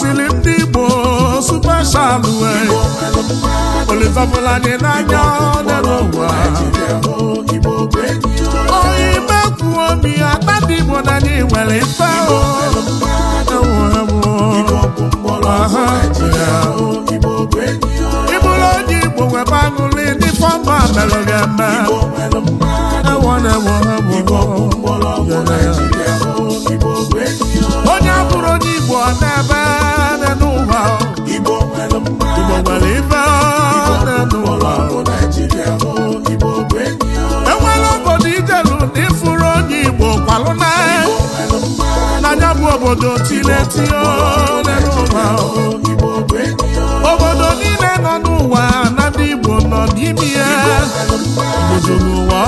siri ndị Igbo supeshalụ olitọbụla dị n'anya n'ụwa onye ime kwuo obi ya tata Igbo na anyị nwere mfe ịbụrụ onye Igbo nwebe aṅụrị ndị fọma merụ gị eme onye abụrụ onye Igbo ọ na-ebe obodo obodo niile nọ n'ụwa na ndị Igbo nọ n'ime ya n'ụwa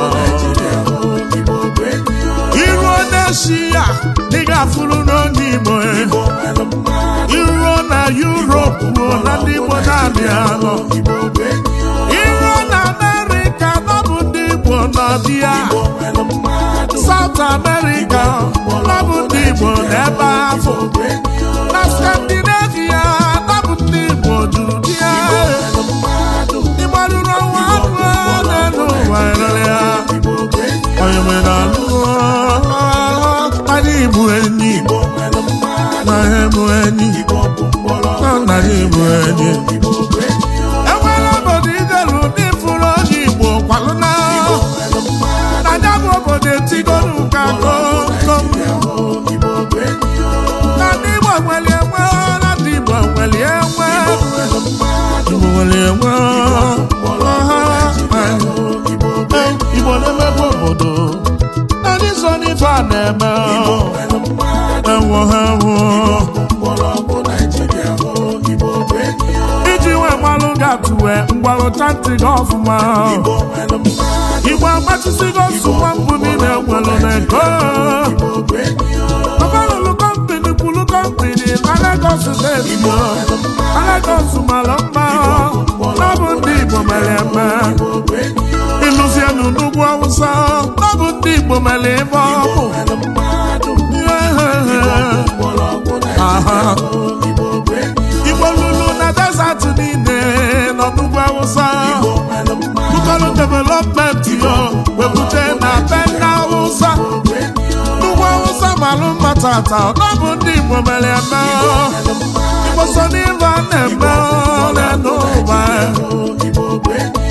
ụwa iruo n'esi ya dị ga-afụrụ n'oge Igbo e. iruo na ruo na ndị Igbo na-abịa iruo na Amerịka nọ bụ ndị Igbo nọ dị ya South America nabụ ndị Igbo n'ebe afọ na Scandinavia nabụ ndị Igbo juru dị ya ịgbarụrụ ọnwa anụ na-enu ụwa rere ya onye nwere anụ anyị bụ enyi na ha bụ enyi na bụ enyi obodo etigonu enwe Igbo enwe Igbo enwe ọha Igbo obodo so iji nwe mmalụ ga-atụwe mgbalụ tanti gị ọfụma ọkpachisigo nsụ nwa mbụ niile enwelụ na ego gọvanọ kọmpini kọmpini mma bụ ndị Igbo mere eme ịlụzienụ tata ọ bụ ndị Igbo mere eme Igbo so n'ife a na-eme n'elu ụwa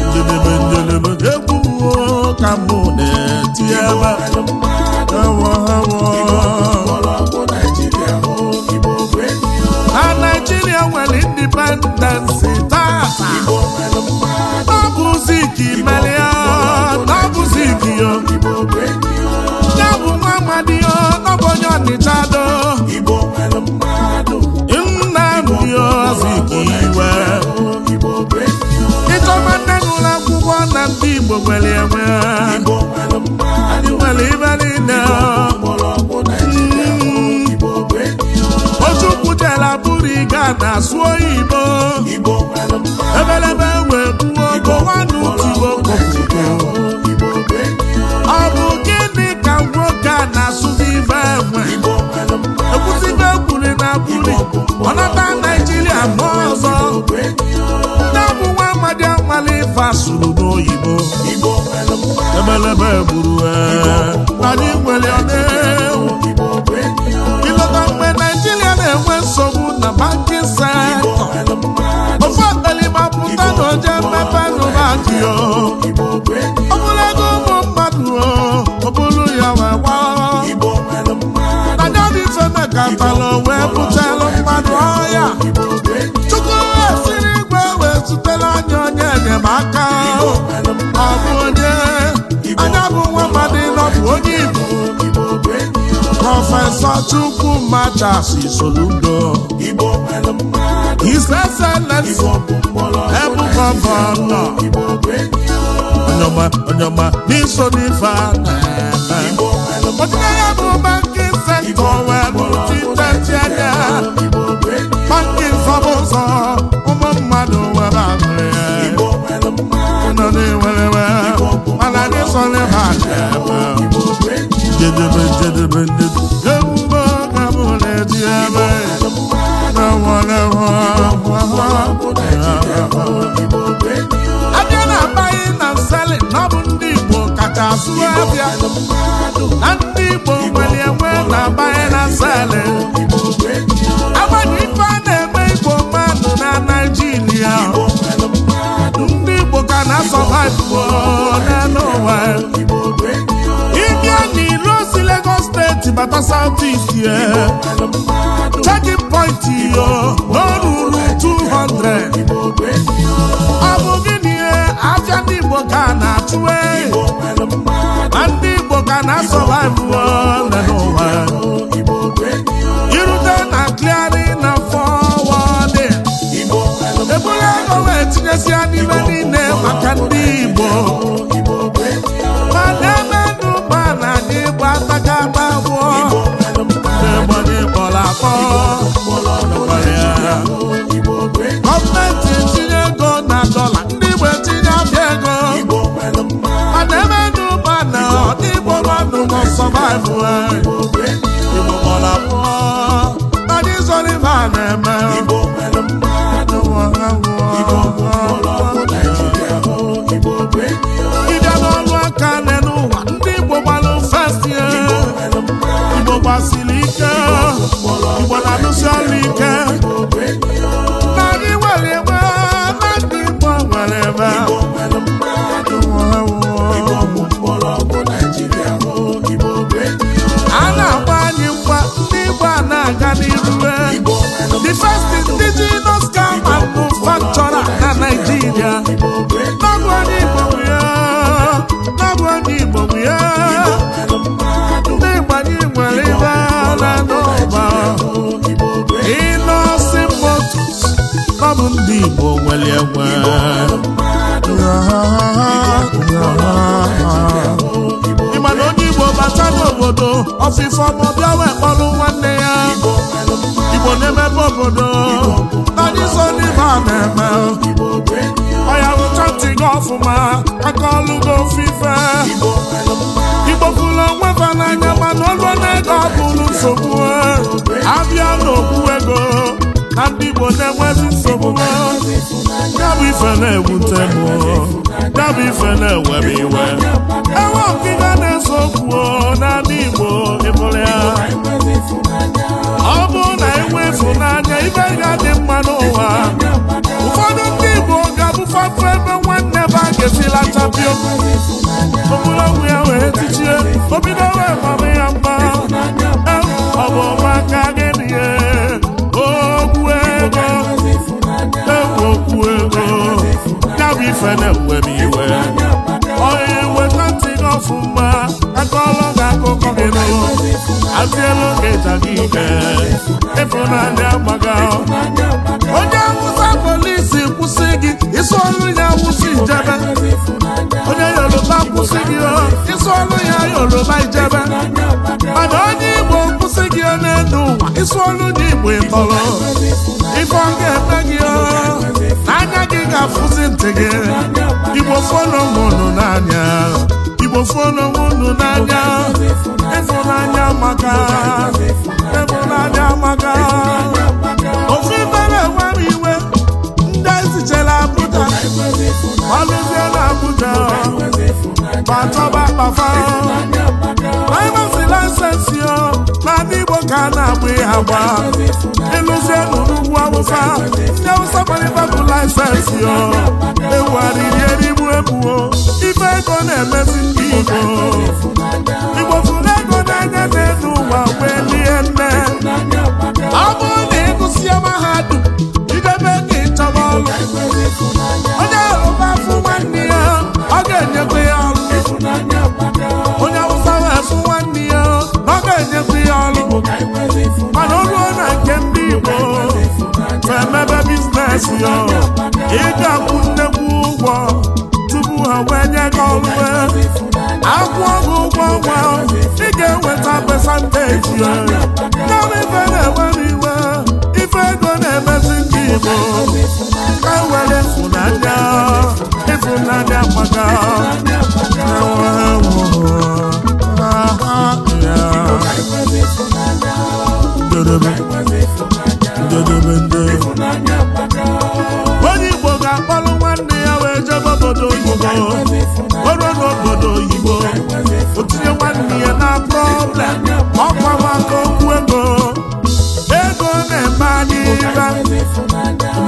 njedebe njedebe egwu ka mụ na-etinye ebe ewo ewo na Naijiria nwere indipendensi tata ọ bụ ka imelia ọ bụzi ka ya amadiyo ọbụ onye ọnịchado nnamdio iwe ịchọba nne n'ụlọ akwụkwọ na ndị igbo nwere enwe ndị nwere ibe niile ochukwutela bụrụ ịga na-asụ Igbo ebelebe wee buo ogo nwanụ tibo kọpụkọ ife asụrụ n'oyibo ebelebe gburu e. anyị nwere mgbe naijiria na-enwe nsogbu na bankin sektọ ofe akpalima pụta na mmepe nụbadịo ọ ego ụmụ mmadụ ọ bụrụ ya wee gbaa na-eso chukwu machasi soludo iseselesi ebugọbọ nọ onyoma n'iso n'ife a na-eme bụ banki sektọ wee bụchi ntechi anya banki ụmụ mmadụ ahụrụ ya ụnọ na mana dieme na wale wa wa abịa na abaghị na nsali na ọ bụ ndị Igbo kacha asụ abịa na ndị Igbo nwere enwe na abaghị na nsali agbanyị ife a na-eme Igbo mmadụ na Naịjirịa, ndị Igbo ka na-asọba Igbo n'elu bata south east yeah. Checking point yo. igbo mara abụọ eme ndị igbo gbalụ festi e. igbo gbasiri ike igbo na ọrụ na-aga e the first indigenous car manufacturer na Nigeria n'ọgwụ ndị Igbo ya n'ọgwụ ndị Igbo ya ndị gbanye nwere ibe ala n'ụba ịnọsi ndị Igbo nwere enwe obodo ọfịfọ ma ọbịa wee kpọrọ nwanne ya igbo na-emebe obodo anyị so n'ibe a na-eme ọya wụchatị gị ọfụma aka ọlụ gị ofufe igbo fụrụ onwe ba n'anya mana olu na-ego ọ bụrụ nsogbu na ndị Igbo na-enwezi nsogbu ya bụ ife na-ewute m ya bụ ife na-ewere iwe enwe na-ese okwu Igbo ịbụrụ ya ọ bụrụ na enwe ịfụnanya ibe ga dị mma n'ụwa ụfọdụ ndị Igbo ga-abụfapụ ebe nwanne be a ga-esilachapịa ogologo ya wee tichie obido wee mama ya mma ọ bụ gị ife na-ewe m iwe onye nweta ntị gị ọfụma akọọlọ gị akụkọ gị n'ụlọ atịelu gị ịja gị ike ịfụnanya agbaga onye awụsa polisi kwụsị gị isi ọrụ ya awụsa ijebe onye yoruba kwụsị gị ọ. isi ọrụ ya yoruba ijebe mana onye igbo kwụsị gị n'elu ụwa isi ọrụ dị igbo ịtọrọ ife ọ eme gị ga-afụzi ntị gị igbo fọnọmụnụ n'anya igbo fọnọmụnụ n'anya ịfụnanya maka ịfụnanya maka ofe bara enwe m iwe ndị ezichere Abuja malụzie na Abuja batọba kpafa driver's license yo na ndị Igbo ka na-agba ịha gba ịlụzie n'ụlugwu awụsa ndị awụsa gbalịtabụ laịsensị ya ewugharịrị erigbu ebuo ife ego na-emezi ndị igbo igbo fụrụ ego na na-elu ụwa wee lie nne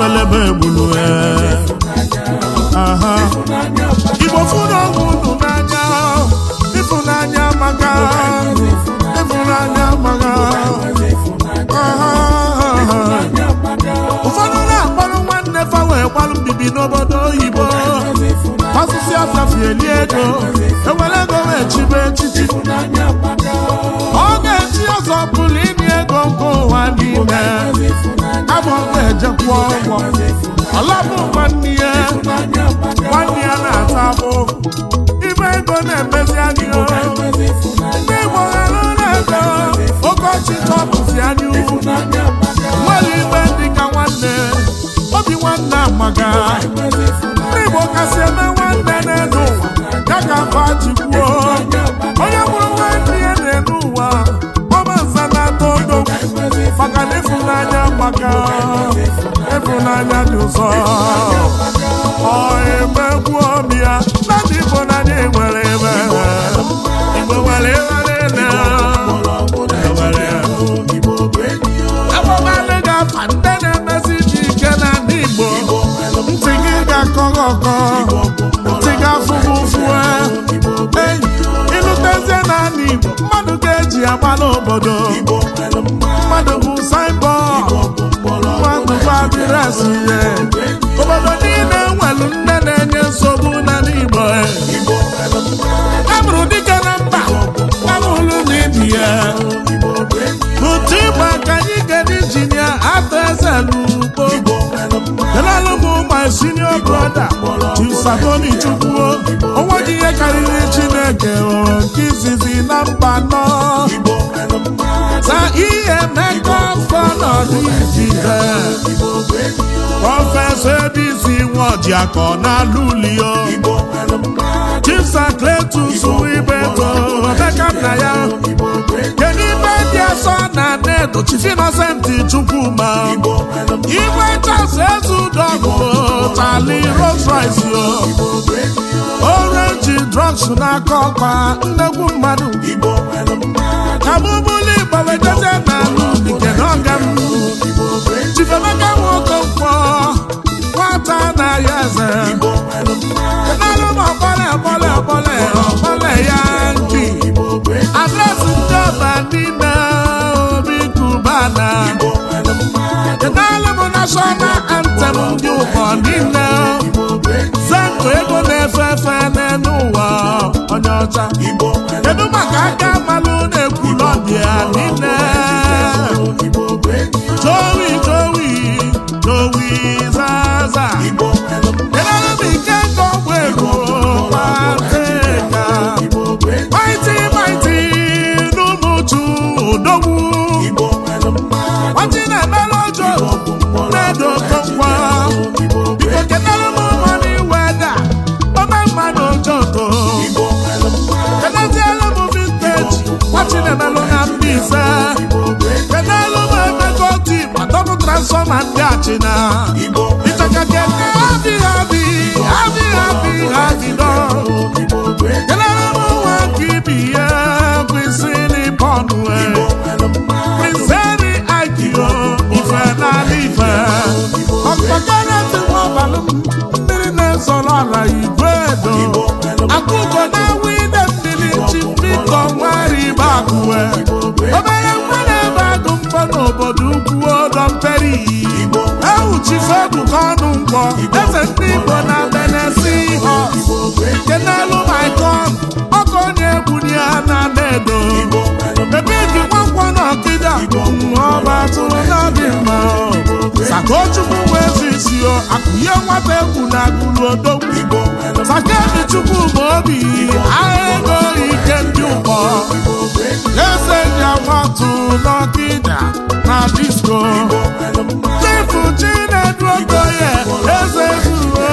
agbelebe egbulu eh. igbo fụrụ ọgwụ unu n'anya ịfụnanya maka ịfụnanya maka ụfọdụ na-akpọrọ nwanne fa wee gbalụ mbibi n'obodo oyibo asụsụ afafi eli ego ewere ego wee chibe echichi ọ ga-eji ọzọ pụrụ inye ego nke ụwa n'ime ga-ejekwa ọgwọ ọlabụ nwanne ya nwanne ya na-ata abụ ibe ego na-emezi anyị ndị Igbo ghara ụlọ ego okeọchị tọpụzi anyị nwere ime dị ka nwanne obi nwanne amaga ndị Igbo kasị eme nwanne n'elu ụwa azụ ya obodo niile nwelu nne na-enye nsogbu n'ala Igbo amụrụ e dike na mba amụrụ ibi ya my senior brother Chisatoni Chukwuo onweghị ihe karịrị Chineke hụrụ nke izizi na mba nọ na ihe mmekọ afọ n'ọdịjide prọfesọ Ebisi Nwojiakọ n'ala ulio Chisa kletus Wibeto Emeka na ya Edochie Innocent Chukwuma igwe chasụ eze udogụtali Rolls Royce orenji drugs n'aka ọkwa nnekwu mmadụ abụbụli gbawedeze na nke n'ọga m chifemeka nwoke mkpọ nwata na ya eze narụ m ọkpọle ọkpọle ọkpọle ọkpọle ya nki Adresi ndị ọba n'ime nashọnal antem ndị ụkọ niile sentụ ego na-efe efe n'elu onye ọcha kedu maka aka malụ na-ekwulọbịa niile penalụ na Mbaise penalụ na emekọti atọpụ transfọma ndị adị bụ nwa ibi ya bụ isi n'ịpọnụ e. prinseri adio ife n'ala ife ọkpakọrọ mmiri na-ezoro ala igwe edo akụkọ na obere mgbe na-ebe adụ mkpọ n'obodo ukwu ọdọ mperi ewuchife ọdụka ọnụ mkpọ eze ndị igbo na benesi nke n'elu maikon ọkụ onye egwu ya na-ada edo ọba tụrụ n'ọdị mma sakochukwu wee zu isi o akụnye nwata egwu na agụrụ odogwu Sakebi chukwu bụ obi agha ego ike ndị ụkọ eze ji akwatụ n'ọdịda na disko chifu chinedu okoye eze zuru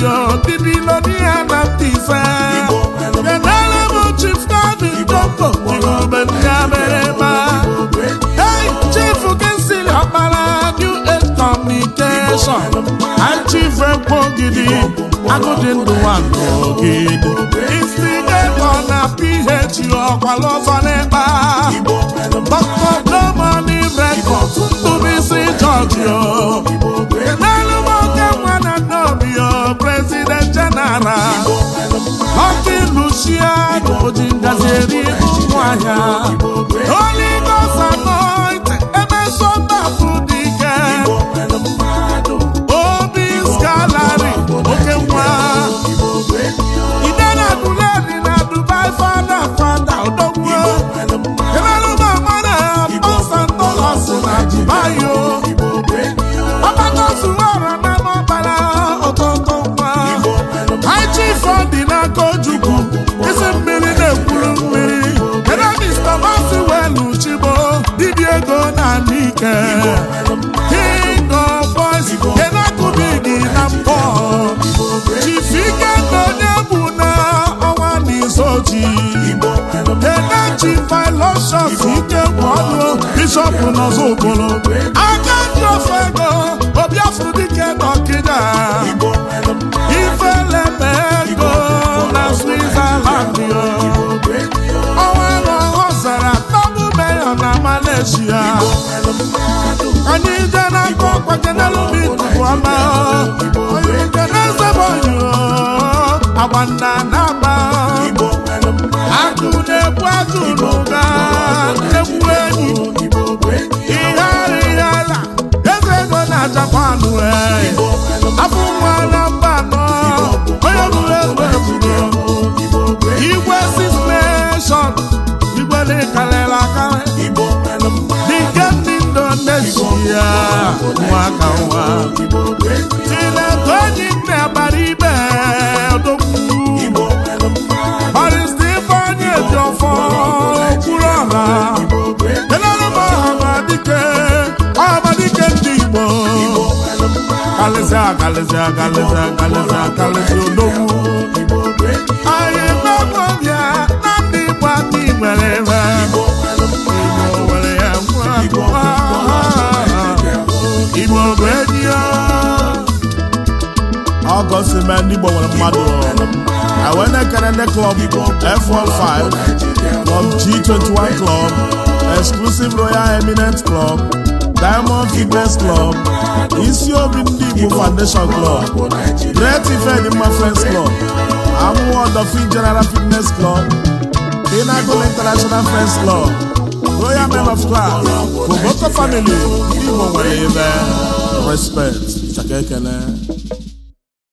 yo didilo ya na ndị ise bịanara m chief nabi dopo igbobe ndị amerịma ei chief kesili ọkpara new age communication chief ekpogidi agụdị ndụ nwagị instigator na phd ọkwala ọzọ n'ịkpa dr domani records president general ọkị Luciano ji ngazi eri ụmụahịa onye gosa noit emesọtapụ dị ike obi skalari oke nwa Igbo na Mike King of Boys Enakubidi na mbọ Chifikendo Nyebu na ọnwa n'izoji Enachi Filoshof Ike Gwọlụ Bishop Nọzọ Okolo Aka ndị ofe ego Obiafọ dike n'Ọkịda Ifele na ego na Switzerland n'ezie anyị na ọkwa tupu onye nke na-ezebe oyi agba nna na-agba na n'ụga egwu enyi ihe ara ala eze ego na japan afọ ụmụ akalịsị akalịsị akalịsị akalịsị odogwu anyị gbagwo bịa na ndị igbo adị nwere igbo nwere ya nwa igbo bụ enyi ya august klọb f15 klọb g21 klọb exclusive royal eminent club Diamond Fitness Club isi obi ndị Igbo Foundation Club Great Ifedimma Friends Club Amuwo Dolphin General Fitness Club Pinnacle International Friends Club Royal Men of Class Koboko Family ndị Igbo nwere ebe respect chaka